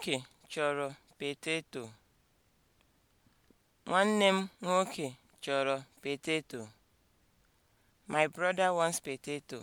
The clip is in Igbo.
nwoke chọrọ peteto. Nwanne m nwoke chọrọ peteto. My brother wants potato.